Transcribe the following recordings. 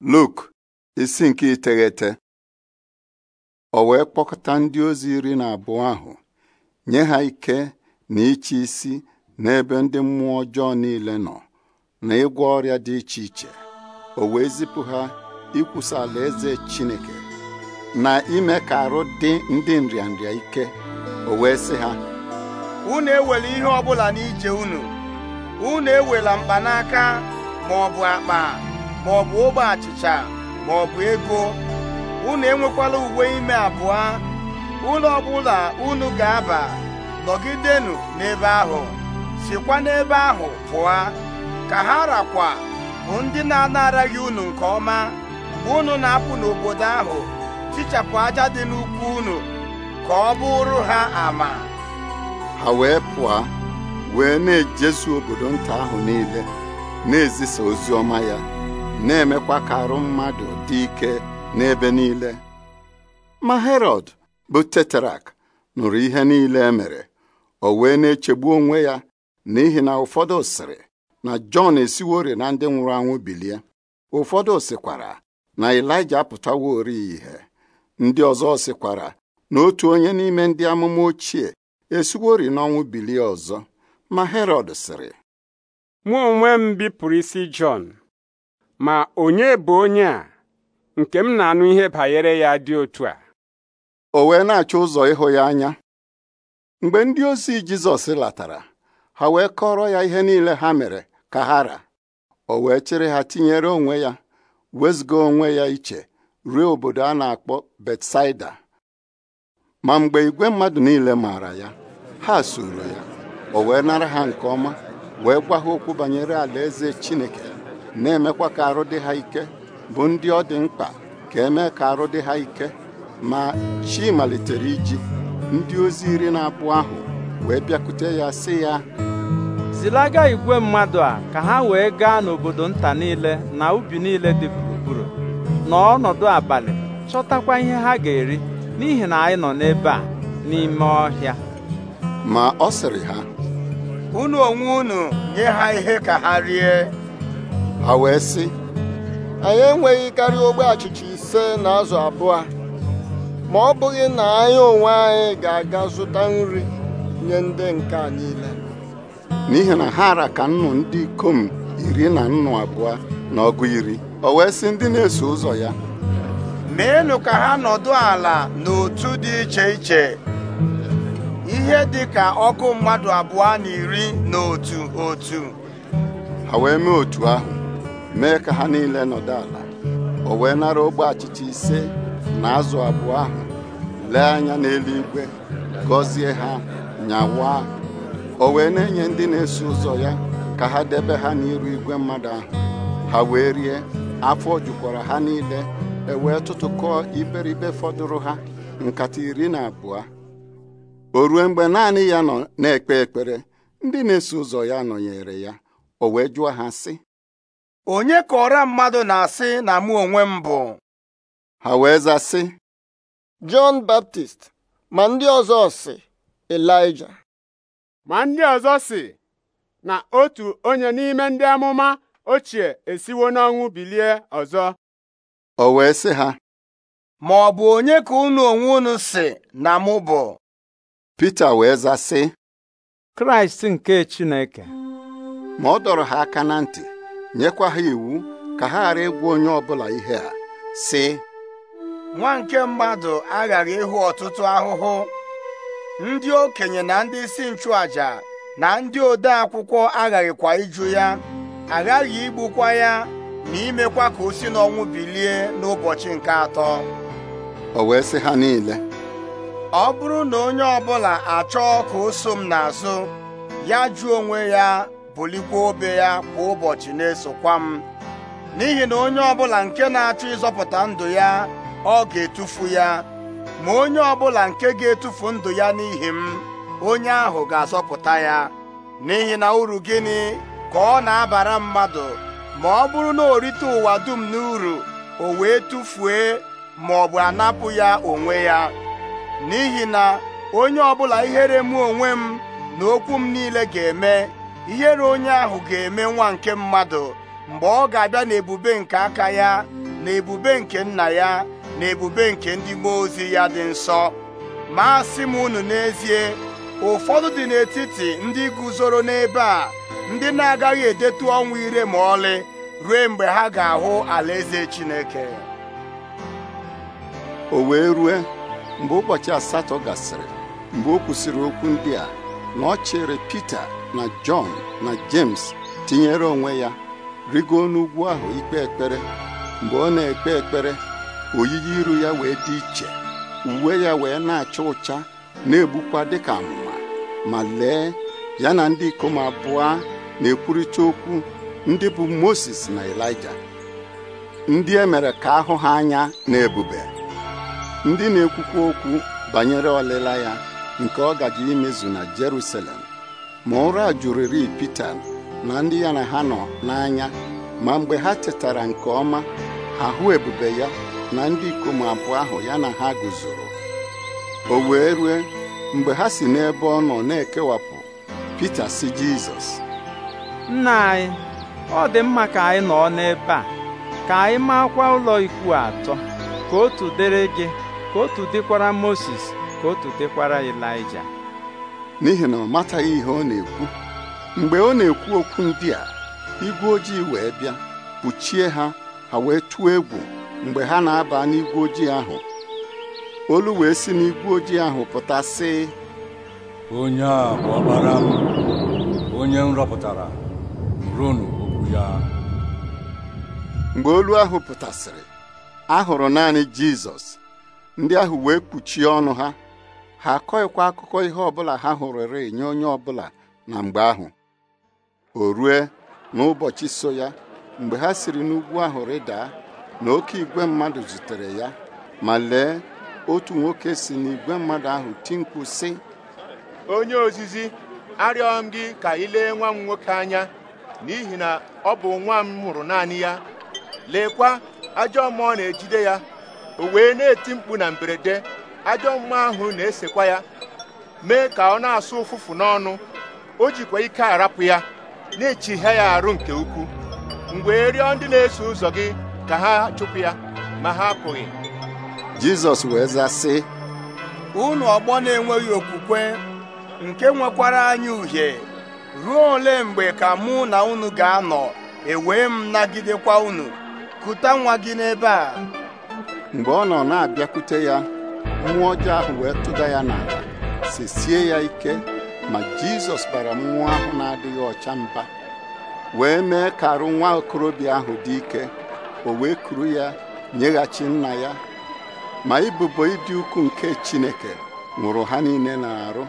Luk isi nke iteghete o wee kpọkọta ndị ozi iri na abụọ ahụ nye ha ike na ịchị isi n'ebe ndị mmụọ ọjọọ niile nọ na ịgwọ ọrịa dị iche iche o wee zipụ ha ikwusa Eze Chineke na ime ka arụ dị ndị nrịanrịa ike o wee sị ha unu ewela ihe bụla n'ije unu unu ewela mkpanaka ma ọ akpa ma ọ bụ ogbe achịcha ma ọ bụ ego unu enwekwala uwe ime abụọ ụlọ ọbụla unu ga-aba nọgidenụ n'ebe ahụ sikwa n'ebe ahụ pụọ ka ha rakwa bụ ndị na-anaraghị unu nke ọma mgbe unu na-apụ n'obodo ahụ tichapụ aja dị n'ukwu unu ka ọ bụrụ ha ama ha wee pụọ wee na-ejezu obodo nta ahụ niile na-ezisa ozi ọma ya na-emekwa ka arụ mmadụ dị ike n'ebe niile ma Herọd bụ teterak nụrụ ihe niile emere, mere o wee na-echegbu onwe ya n'ihi na ụfọdụ sịrị na Jọn esiwori na ndị nwụrụ anwụ bilie ụfọdụ sịkwara na Ịlaịja ori ihe ndị ọzọ sịkwara na otu onye n'ime ndị amụma ochie esiwori n'ọnwụ bilie ọzọ ma Herọd sịrị mụ onwe m bipụrụ isi Jọn ma onye bụ onye a nke m na-anụ ihe banyere ya dị otu a o wee na-achọ ụzọ ịhụ ya anya mgbe ndị ozi Jizọs latara ha wee kọrọ ya ihe niile ha mere ka ha ra o wee chịrị ha tinyere onwe ya wezụga onwe ya iche ruo obodo a na-akpọ Betsaida ma mgbe igwe mmadụ niile maara ya ha soro ya o wee nara ha nke ọma wee gwa okwu banyere alaeze Chineke na-emekwa ka arụ dị ha ike bụ ndị ọ dị mkpa ka eme ka arụ dị ha ike ma chi malitere iji ndị ozi iri na abụọ ahụ wee bịakute ya sị ya zilaga igwe mmadụ a ka ha wee gaa n'obodo nta niile na ubi niile dị gburugburu na ọnọdụ abalị chọtakwa ihe ha ga-eri n'ihi na anyị nọ n'ebe a n'ime ọhịa ma ọ sịrị ha unu onwe unu nye ha ihe ka ha rie ha wee sị anyị enweghị karịa ogbe achịcha ise na azụ abụọ ma ọ bụghị na anyị onwe anyị ga-aga zụta nri nye ndị nke a niile n'ihi na ha ara ka nnụ ndị ikom iri na nnụ abụọ na ọgụ iri o wee sị ndị na-eso ụzọ ya meenụ ka ha nọdụ ala n'otu dị iche iche ihe dị ka ọkụ mmadụ abụọ na iri na otu otu ha wee mee otu ahụ mee ka ha niile nọdụ ala o wee nara ogbe achịcha ise na azụ abụọ ahụ lee anya n'eluigwe gọzie ha nyawa o wee na-enye ndị na-eso ụzọ ya ka ha debe ha n'iru igwe mmadụ ahụ ha wee rie afọ jukwara ha niile e wee tụtụkọọ iberibe fọdụrụ ha nkata iri na abụọ o rue mgbe naanị ya nọ na-ekpe ekpere ndị na-eso ụzọ ya nọnyere ya o wee jụọ ha sị onye ka ọra mmadụ na-asị na mụ onwe m bụ ha wee zaa sị Baptist ma ndị ọzọ sị Elija ma ndị ọzọ si na otu onye n'ime ndị amụma ochie esiwo n'ọnwụ bilie ọzọ o wee sị ha ma ọ bụ onye ka unu onwe unu si na mụ bụ Pita wee zaa Kraịst nke Chineke ma ọ dọrọ ha aka na ntị nyekwa ha iwu ka ha ghara ịgwa onye ọbụla ihe a sị nwa nke mmadụ aghara ịhụ ọtụtụ ahụhụ ndị okenye na ndị isi nchụàjà na ndị ode akwụkwọ aghaghịkwa iju ya aghaghị igbukwa ya na imekwa ka o si n'ọnwụ bilie n'ụbọchị nke atọ o wee sị ha niile ọ bụrụ na onye ọbụla achọọ ka o so m n'azụ ya jụọ onwe ya bulikwa obe ya kwa ụbọchị na-esokwa m n'ihi na onye ọbụla nke na-achọ ịzọpụta ndụ ya ọ ga-etufu ya ma onye ọbụla nke ga-etufu ndụ ya n'ihi m onye ahụ ga-azọpụta ya n'ihi na uru gịnị ka ọ na-abara mmadụ ma ọ bụrụ na o rite ụwa dum n'uru o wee tufue ma ọ bụ anapụ ya onwe ya n'ihi na onye ọbụla ihere mụ onwe m na okwu m niile ga-eme ihere onye ahụ ga-eme nwa nke mmadụ mgbe ọ ga-abịa n'ebube nke aka ya na ebube nke nna ya na ebube nke ndị mmụọ ozi ya dị nsọ ma asị m unu n'ezie ụfọdụ dị n'etiti ndị guzoro n'ebe a ndị na-agaghị edetu ọnwụ ire ma ọlị ruo mgbe ha ga-ahụ alaeze Chineke o wee rue mgbe ụbọchị asatọ gasịrị mgbe o kwusịrị okwu ndị a na ọ chịrị Pita na Jọn na James tinyere onwe ya rigo n'ugwu ahụ ikpe ekpere mgbe ọ na-ekpe ekpere oyiyi iru ya wee dị iche uwe ya wee na-acha ụcha na-egbukwa dịka amụma ma lee ya na ndị ikom abụọ na-ekwurịta okwu ndị bụ Moses na Elija ndị e mere ka ahụ ha anya na ebube ndị na-ekwukwa okwu banyere ọlịla ya nke ọ gaji imezu na Jerusalem ma ụra jụrịrị Pita na ndị ya na ha nọ n'anya ma mgbe ha tetara nke ọma ahụ ebube ya na ndị ikom abụọ ahụ ya na ha guzoro o wee rue mgbe ha si n'ebe ọ nọ na-ekewapụ Pita si Jizọs nna anyị ọ dị mma ka anyị nọ n'ebe a ka anyị makwa ụlọ ikwu atọ ka otu dịrị gị ka otu dịkwara Moses ka otu dịkwara Elaịja n'ihi na ọ mataghị ihe ọ na-ekwu mgbe ọ na-ekwu okwu ndị a igwe ojii wee bịa kpuchie ha ha wee tụọ egwu mgbe ha na-aba n'igwe ojii ahụ olu wee si n'igwe ojii ahụ pụta sị onye a bụ ọkpara m onye m rọpụtara ronu okwu ya mgbe olu ahụ pụtasịrị a hụrụ naanị Jizọs ndị ahụ wee kpuchie ọnụ ha ha akọghịkwa akụkọ ihe ọbụla ha hụrụre nye onye ọbụla na mgbe ahụ o rue n'ụbọchị so ya mgbe ha siri n'ugwu ahụ rịda na oke igwe mmadụ zutere ya ma lee otu nwoke si n'igwe mmadụ ahụ ti si onye ozizi arịọ m gị ka ị lee nwa m nwoke anya n'ihi na ọ bụ nwa m hụrụ naanị ya leekwa ajọ mmụọ na-ejide ya o wee na-eti mkpu na mberede ajọ mma ahụ na-esekwa ya mee ka ọ na-asụ ụfụfụ n'ọnụ o jikwa ike arapụ ya na-echihịa ya arụ nke ukwu mgbe e rịọ ndị na-eso ụzọ gị ka ha chụpụ ya ma ha apụghị Jizọs wee zaa unu ọgbọ na-enweghị okwukwe nke nwekwara anyị uhie ruo ole mgbe ka mụ na unu ga-anọ ewee m nagidekwa unu kuta nwa gị n'ebe a mgbe ọ nọ na-abịakwute ya mmụọ ọjọọ ahụ wee tụda ya n'ala sesie ya ike ma jizọs bara mmụọ ahụ na-adịghị ọcha mba wee mee ka arụ nwa okorobịa ahụ dị ike o wee kuru ya nyeghachi nna ya ma ibubo ịdị ukwu nke chineke nwụrụ ha niile na-arụ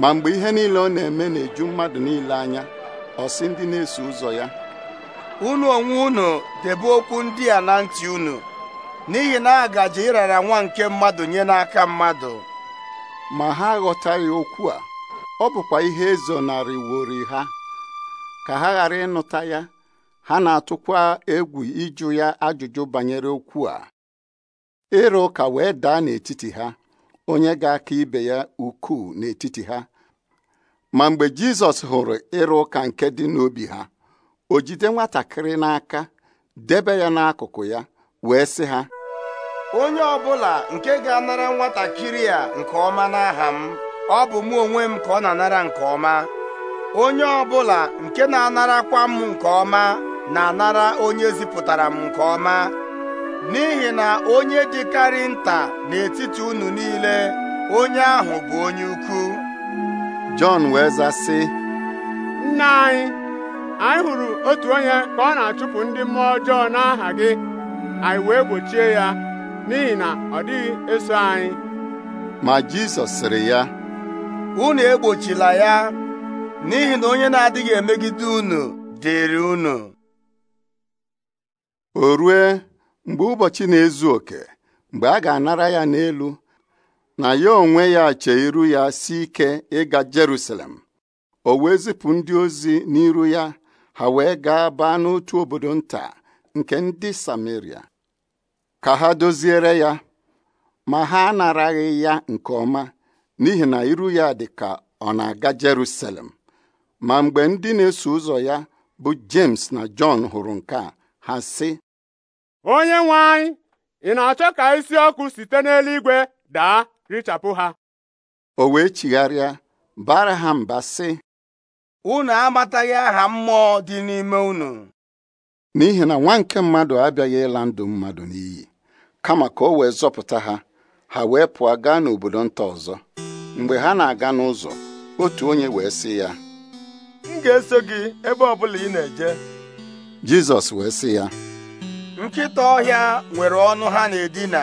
ma mgbe ihe niile ọ na-eme na-eju mmadụ niile anya ọsị ndị na-eso ụzọ ya unu onwe unu debe okwu ndị a na ntị unu n'ihi na agaji ịrara nwa nke mmadụ nye n'aka mmadụ ma ha aghọtaghị okwu a ọ bụkwa ihe iwori e ha ka ha ghara ịnụta ya ha na-atụkwa egwu ịjụ ya ajụjụ banyere okwu a ịrụ ụka wee daa n'etiti ha onye ga-aka ibe ya ukwuu n'etiti ha ma mgbe Jizọs hụrụ ịrụ ụka nke dị n'obi ha o jide nwatakịrị n'aka debe ya n'akụkụ ya wee sị ha onye ọ bụla nke ga-anara nwatakịrị a nke ọma n'aha m ọ bụ mụ onwe m ka ọ na-anara nke ọma onye ọ bụla nke na-anarakwa m nke ọma na-anara onye zipụtara m nke ọma n'ihi na onye dịkarị nta n'etiti unu niile onye ahụ bụ onye ukwu Jọn wee zaa nna anyị anyị hụrụ otu onye ka ọ na-achụpụ ndị mmụọ ọjọọ n'aha gị anyị wee gbochie ya n'ihi na ọ dịghị eso anyị ma Jizọs sịrị ya unu egbochila ya n'ihi na onye na-adịghị emegide unu dịrị unu o rue mgbe ụbọchị na-ezu oke mgbe a ga-anara ya n'elu na ya onwe ya chee iru ya si ike ịga Jerusalem o wee zipụ ndị ozi n'iru ya ha wee gaa baa n'otu obodo nta nke ndị Samaria ka ha doziere ya ma ha anaraghị ya nke ọma n'ihi na iru ya dị ka ọ na-aga Jerusalem ma mgbe ndị na-eso ụzọ ya bụ James na John hụrụ nke a ha sị onye nwe anyị ị na-achọ ka isi ọkụ site n'eluigwe daa richapụ ha o wee chigharịa bara ha mba sị unu amataghị aha mmụọ dị n'ime unu n'ihi na nwa nke mmadụ abịaghị ịla ndụ mmadụ n'iyi kama ka o wee zọpụta ha ha wee pụọ gaa n'obodo nta ọzọ mgbe ha na-aga n'ụzọ otu onye wee sị ya m ga-eso gị ebe ọ bụla ị na-eje Jizọs wee sị ya nkịta ọhịa nwere ọnụ ha na-edina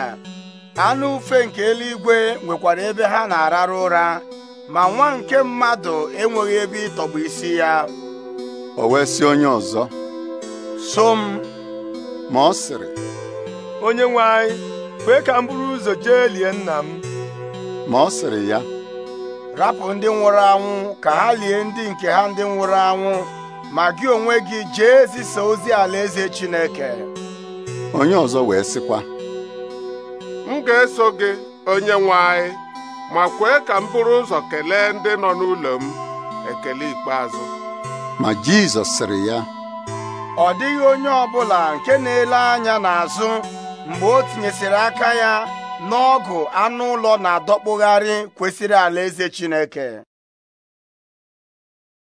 anụ ufe nke eluigwe nwekwara ebe ha na-arara ụra ma nwa nke mmadụ enweghị ebe ịtọgbụ isi ya o wee sị onye ọzọ so m ma ọ sịrị onye nwe anyị kwee ka m ụzọ jee lie nna m ma ọ sịrị ya rapụ ndị nwụrụ anwụ ka ha lie ndị nke ha ndị nwụrụ anwụ ma gị onwe gị jee zisa ozi alaeze Chineke onye ọzọ wee sịkwa m ga-eso gị onye nwe anyị ma kwee ka m buru ụzọ kelee ndị nọ n'ụlọ m ekele ikpeazụ ma Jizọs sịrị ya ọ dịghị onye ọ bụla nke na-ele anya n'azụ mgbe o tinyesịrị aka ya n'ọgụ anụ ụlọ na-adọkpụgharị kwesịrị alaeze Chineke